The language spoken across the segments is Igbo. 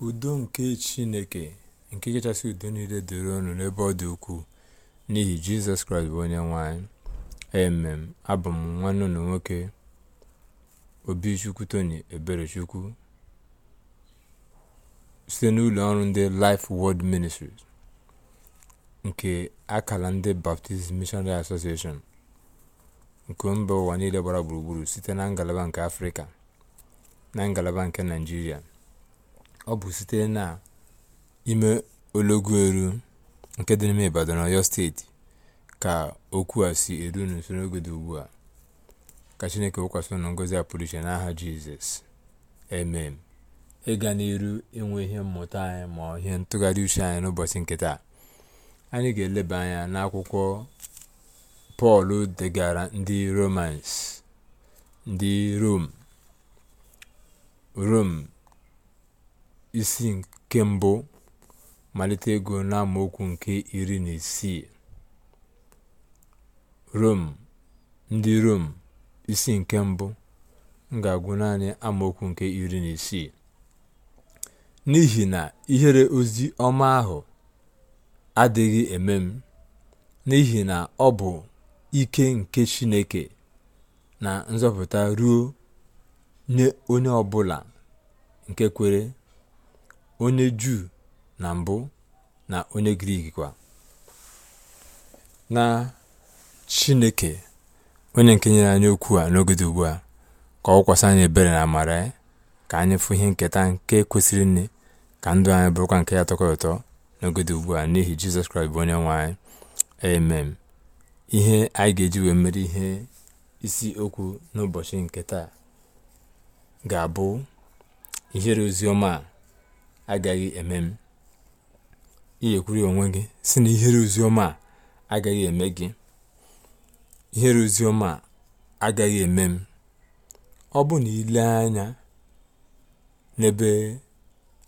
udo nke chineke nke kachasị udo niile dịrị ọnụ n'ebe ọ dị ukwuu n'ihi jizọs kraịst bụ onye nwanyị anyị emem abụ m nwanne unu nwoke obichukwu tony eberechukwu site n'ụlọ ọrụ ndị life world ministries nke akala ndị baptist missionary association nke mba ụwa niile gbara gburugburu site na ngalaba nke afrịka na ngalaba nke naijiria ọ bụ site na ime ologu eru nke dị n'ime Ibadan Ọyọ steeti ka okwu a si eru n'usoro n'oge dị ugbu a ka Chineke wụkwasị unu ngọzi a pụrụ iche n'aha Jizọs emem ịga n'iru inwe ihe mmụta anyị ma ihe ntụgharị uche anyị n'ụbọchị nkịta anyị ga-eleba anya n'akwụkwọ Pọl degara ndị Romans ndị Rom Rom isi nke mbụ malite ego n'amaokwu nke iri na isii Rom ndị Rom isi nke mbụ ga-agụ naanị amaokwu nke iri na isii n'ihi na ihere ozi ọma ahụ adịghị eme m n'ihi na ọ bụ ike nke Chineke na nzọpụta ruo nye onye ọbụla nke kwere onye Juu na mbụ na onye Grik kwa na Chineke onye nke nyere anyị okwu a n'oge dị ugbu a ka ọ anyị ebere na amara ya ka anyị fụ ihe nketa nke kwesịrị nne ka ndụ anyị bụrụkwa nke ya tọkọrọ ụtọ n'oge dị ugbu a n'ihi Jizọs Kraịst bụ onye nwe anyị amen ihe anyị ga-eji wee mere ihe isi okwu n'ụbọchị nketa ga-abụ ihere oziọma a agaghị eme m kwuru ya onwe gị si na ihere ozioma a agaghị eme gị ihere ozioma a agaghị eme m ọ bụ na ile anya n'ebe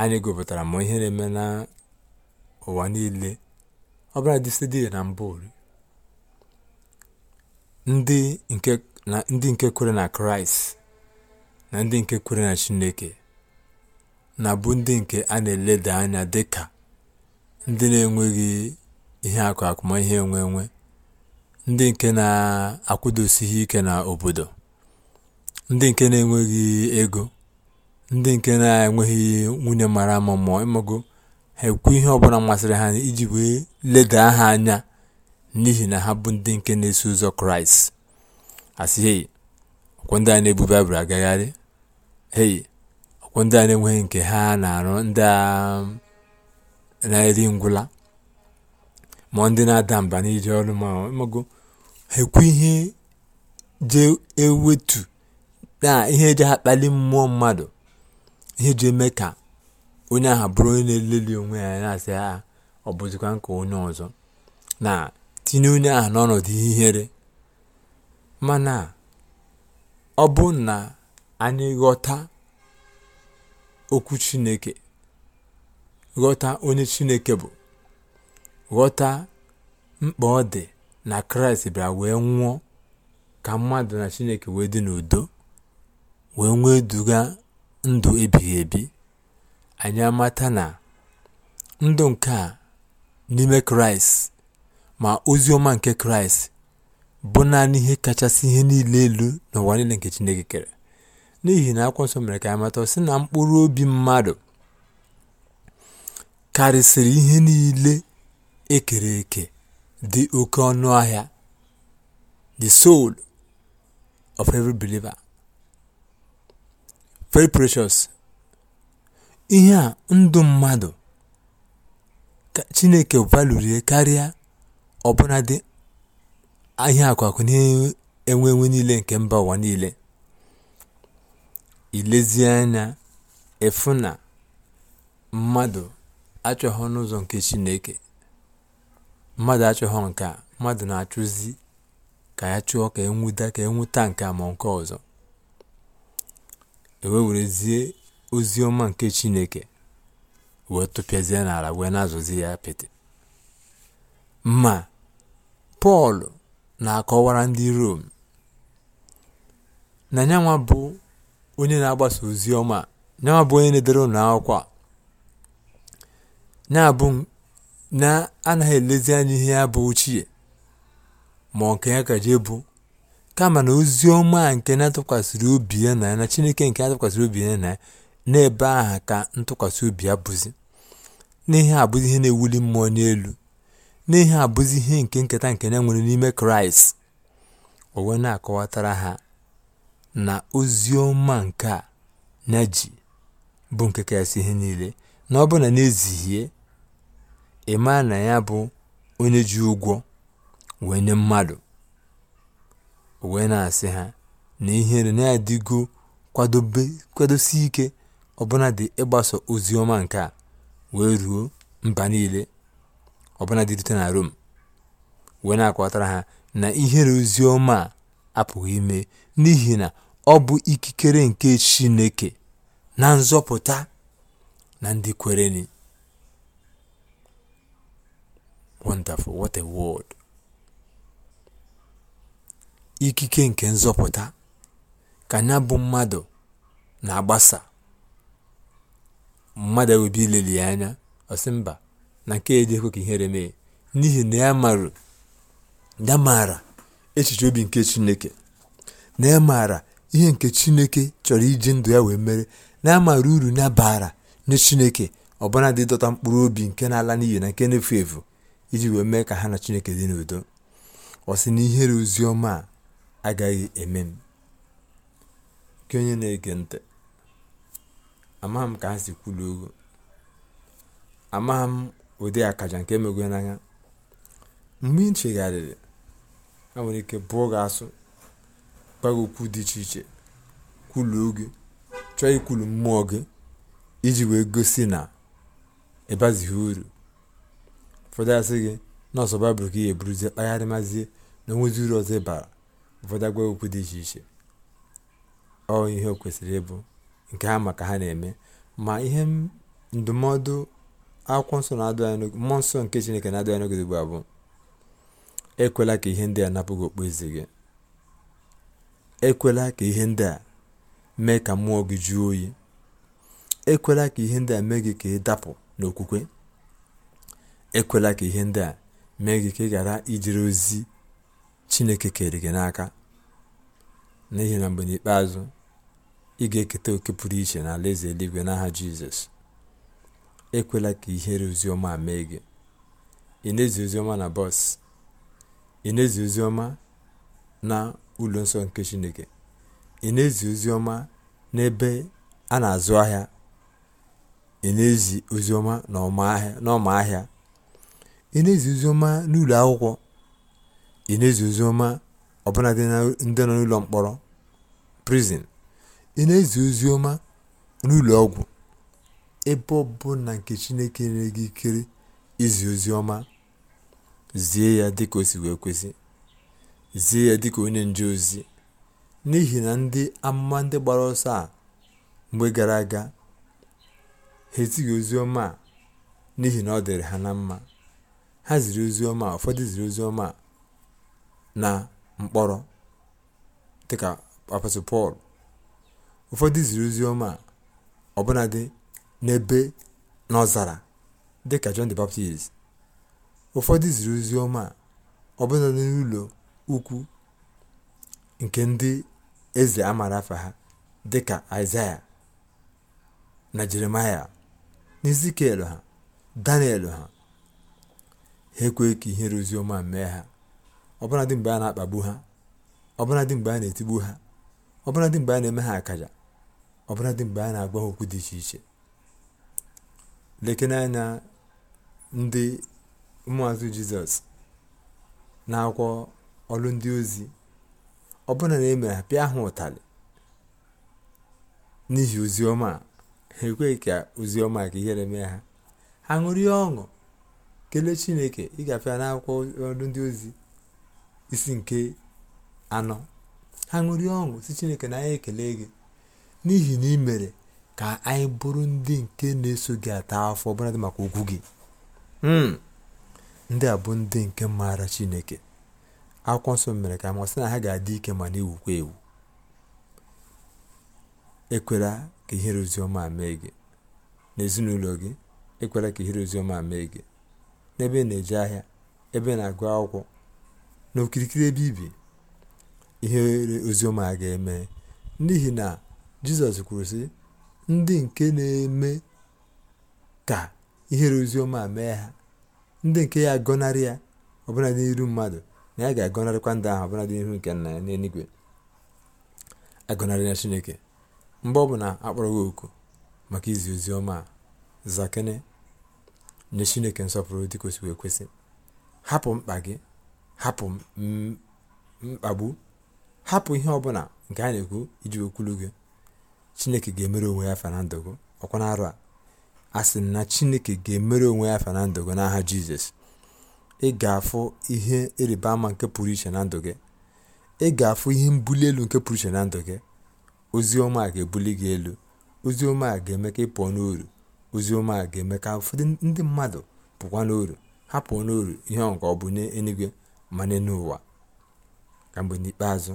anyị gụpụtara ma ihe na-eme n'ụwa niile ọ bụla dịsịdị na mbụ ndị nke kwere na kraịst na ndị nke kwere na chineke na bụ ndị nke a na-eleda anya dịka ndị na-enweghị ihe akụ akụmihe enwe enwe ndị nke na-akwụdosighị ike na obodo ndị nke na-enweghị ego ndị nke na-enweghị nwunye mara ama mmụọ ịmago ha ekwu ihe ọbụla masịrị ha iji wee leda ha anya n'ihi na ha bụ ndị nke na-eso ụzọ kraịst asị hei ndị a na-ebu baịbụl agagharị hei bụ ndị a na-enweghị nke ha na-arụ ndị a na-eri ngwụla ma ndị na-ada mba n'iji ọrụ ma ha ekwu ihe je ewetu na ihe eji akpali mmụọ mmadụ ihe ji eme ka onye ahụ bụrụ onye na-eleli onwe ya na-asị ha ah, ọ bụzikwa nke onye ọzọ na tinye onye aha n'ọnọdụ ihere mana ọ bụ na anyị ghọta okwu chineke ghọta onye chineke bụ ghọta mkpa ọ dị na kraịst bịara wee nwụọ ka mmadụ na chineke wee dị n'udo wee nwee duga ndụ ebighị ebi anyị amata na ndụ nke a n'ime kraịst ma ozi ọma nke kraịst bụ naanị ihe kachasị ihe niile elu n'ụwa niile nke chineke kere n'ihi na akwụkwọ nsọ mere ka anyị mata na mkpụrụ obi mmadụ karịsịrị ihe niile ekere eke dị oke ọnụ ahịa the soul of every believer very precious ihe a ndụ mmadụ chineke valurie karịa ọbụna dị ahịa akwakụ na-enwe enwe niile nke mba ụwa niile i anya ịfụ na mmadụ achọghọ n'ụzọ nke chineke mmadụ achọghọ nke a mmadụ na-achụzi ka ya chụọ ka enwuda ka enweta nke a ma nke ọzọ ewe werezie ozi ọma nke chineke wee tụpịazie n'ala wee na-azụzi ya apịtị ma pọl na-akọwara ndị rom na nyanwa bụ onye na-agbasa ozi ọma na-abụ onye na-edere ụlọ akwụkwọ na-abụ na-anaghị elezi anya ihe ya bụ ochie ma nke ya ka jee bụ kama na ozi ọma nke na-atụkwasịrị obi ya na ya na chineke nke na tụkwasịrị obi ya na ya na-ebe aha ka ntụkwasị obi ya bụzi n'ihe abụzi ihe na-ewuli mmụọ n'elu n'ihe abụzi ihe nke nketa nke na-enwere n'ime kraịst owe na-akọwatara ha na ozi ọma nke a ya bụ nke kasị ihe niile na ọ bụ na n'ezihie ịmaa na ya bụ onye ji ụgwọ wee nye mmadụ wee na-asị ha na ihere na-adịgo kwadosi ike ọbụna dị ịgbaso ozi ọma nke a wee ruo mba niile ọbụna dị rute na Rom wee na-akọtara ha na ihere ozi ọma a apụghị ime n'ihi na Ọ bụ ikikere nke Chineke na nzọpụta na ndị ni Wonderful, what a word! Ikike nke nzọpụta ka ya bụ mmadụ na-agbasa mmadụ ewebe ileli ya anya ọsị mba na nke ejekwe ka ihere mee n'ihi na ya maara ya maara echiche obi nke Chineke na ya maara ihe nke Chineke chọrọ iji ndụ ya wee mere na-amara uru na bara nye Chineke ọbụnadị dọta mkpụrụ obi nke na-ala n'iyi na nke na-efu efu iji wee mee ka ha na Chineke dị n'udo ọ sị na ihere ozi ọma a agaghị eme m nke onye na-ege ntị amaghị m ka ha si kwulu ogo amaghị m ụdị akaja nke emego n'anya mgbe ị chegharịrị ha nwere ike bụọ gị asụ gwa okwu dị iche iche kwuluo gị chọọ ikwulu mmụọ gị iji wee gosi na ịbazighị uru ụfọdụ asị gị ọsọ baịbụl ka ị eburuzie kpagharị mazie na onwezi uru ọzọ ịbara ụfọdụ agwa okwu dị iche iche ọ ihe o kwesịrị ịbụ nke ha maka ha na-eme ma ihe ndụmọdụ akwụkwọ nsọ na-adụ mmụọ nsọ nke chineke na-adụ anyị n'oge ugbu a bụ ekwela ka ihe ndị a napụ gị okpu eze gị ekwela ka ihe ndị a mee ka mmụọ gị jụọ oyi ekwela ka ihe ndị a mee gị ka ị dapụ n'okwukwe ekwela ka ihe ndị a mee gị ka ị ghara ijere ozi chineke kere gị n'aka n'ihi na mgbe n'ikpeazụ ị ga-eketa oke pụrụ iche na alaeze eluigwe n'aha jizọs ekwela ka ihere oziọma a mee gị ị na-ezi na bọs ụlọ nsọ nke chineke ị na-ezi ozi ọma n'ebe a na-azụ ahịa ị na-ezi ozi ọma n'ọma ahịa ị na-ezi ozi ọma n'ụlọ akwụkwọ ị na-ezi ozi ọma ọbụla ndị nọ n'ụlọ mkpọrọ prison ị na-ezi ozi ọma n'ụlọ ọgwụ ebe ọbụla nke chineke nyere gị ikere izi ozi ọma zie ya dịka o si wee kwesị zie ya dịka onye nje ozi n'ihi na ndị amụma ndị gbara ọsọ a mgbe gara aga ha ezighị ozi ọma a n'ihi na ọ dịrị ha na mma ha ziri ozi ọma ụfọdụ ziri ozi ọma na mkpọrọ dịka apọstọl pọl ụfọdụ ziri ozi ọma ọbụnadị n'ebe n'ọzara dịka john the baptist ụfọdụ ziri ozi ọma ọbụnadị n'ụlọ ukwu nke ndị eze amara afa ha dịka aịzaya na jeremaya na ezikiel ha daniel ha ha ekwe ka rozi oziọma mee ha ọbụladị mgbe a na-akpagbu ha ọbụladị mgbe a na-etigbu ha ọbụladị mgbe a na-eme ha akaja ọbụladị mgbe a na-agwa ha okwu dị iche iche lekene anya ndị ụmụazụ jizọs na akwụkwọ ọrụ ndị ozi ọbụna na emere mere ha pịa ha ụtarị n'ihi oziọma ha ekweghị ka oziọma ka ihere mee ha ha ṅụrie ọṅụ kelee chineke ịgafe ya n'akwụkwọ ọrụ ndị ozi isi nke anọ ha ṅụrie ọṅụ si chineke na anyị ekele gị n'ihi na ị mere ka anyị bụrụ ndị nke na-eso gị ata afọ ọbụladị maka okwu gị hmm. ndị a bụ ndị nke maara chineke akwụkwọ nsọ mere ka amasị na ha ga-adị ike ma na-ewukwa ewu ekwela ka ihere oziọma mee gị n'ezinụlọ gị ekwela ka ihere oziọma mee gị n'ebe na-eje ahịa ebe na-agụ akwụkwọ na okirikiri ebe ibi ihere oziọma ga-eme n'ihi na jizọs kwuru sị ndị nke na-eme ka ihere ozioma mee ha ndị nke ya gọnarị ya ọbụla n'iru mmadụ na ya ga-agọnarịkwa ndụ ahụ ọbụla dị n'ihu nke nna ya n'eluigwe na chineke mgbe ọ bụla akpọrọ gị oku maka izi ozi ọma a zakene nye chineke nsọpụrụ dị kwesịrị ekwesị hapụ mkpa gị hapụ mkpagbu hapụ ihe ọbụla nke a na-ekwu iji okwulu gị chineke ga-emere onwe ya fanandogo ọkwa na arụ a a sị na chineke ga-emere onwe ya fanandogo n'aha jizọs ị ga-afụ ihe ama nke pụrụ iche na ndụ gị, ị ga-afụ ihe mbuli elu nke pụrụ iche na ndụ gị, ozi a ga-ebuli gị elu, ozi a ga-eme ka ị pụọ n'uru, oziọma a ga-eme ka ụfọdụ ndị mmadụ pụkwa n'uru, ha pụọ n'oru ihe ahụ ka ọ bụ n'eluigwe ma n'ụwa. ka mgbe n'ikpeazụ,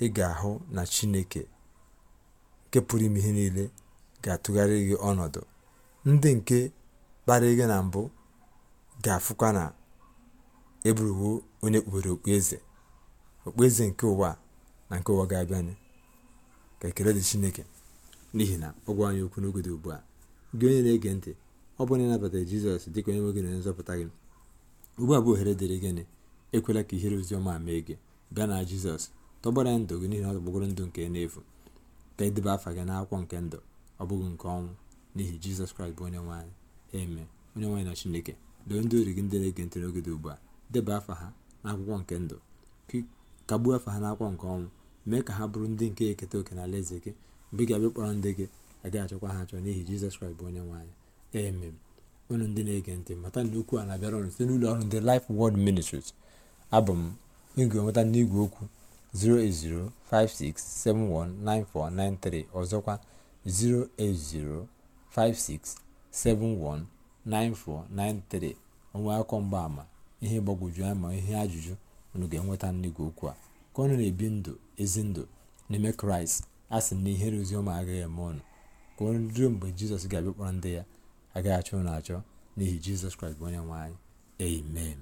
ị ga-ahụ na Chineke nke pụrụ ime ihe niile ga-atụgharị gị ọnọdụ, ndị nke kparịrị gị na mbụ ga-afụkwa na e bụrụwo onye kpubere okpueze okpueze nke ụwa na nke ụwa ga-abịanụ ka ekele dị chineke n'ihi na ọ gwa anyị okwu n'oge dị ugbu a gị onye na-ege ntị ọ bụrụ na ịnabatara jizọs dịka onye nwe gị na onye nzọpụta gị ugbu a bụ ohere dịrị gịnị ekwela ka ihere oziọma mee gị bịa na jizọs tọgbara ndụ gị n'ihi na ọ tọgbọgoro ndụ nke n'efu ka dịba afa gị n'akwụkwọ nke ndụ ọ bụghị nke ọnwụ n'ihi jizọs kraịst bụ onye nwaanyị eme onye nwaanyị na chineke doo ndị ori gị ndị na-ege ntị n'oge ugbu a deba afa ha n'akwụkwọ nke ndụ kagbuo afa ha n'akwụkwọ nke ọnwụ mee ka ha bụrụ ndị nke eketa oke na eze gị mgbe ị ga-abịa kpọrọ ndị gị agaghị achọkwa ha achọ n'ihi jizọs kraịst bụ onye nwe anyị emem unu ndị na-ege ntị mata na okwu a na-abịara ọrụ site n'ụlọ ọrụ ndị Life Word Ministries abụ m ị ga n'igwe okwu 08056719493 ọzọkwa 08056719493 onwe akọ mgbaama ihe gbagwoju anya ma ihe ajụjụ unu ga-enweta nnigwe okwu a ka ọ na-ebi ndụ ezi ndụ n'ime kraịst a sị na ihere oziọma agaghị eme ọnụ ka unu ruo mgbe jizọs ga-abịa ndị ya agaghị achọ ụnụ achọ n'ihi jizọs kraịst bụ onye nwe anyị amen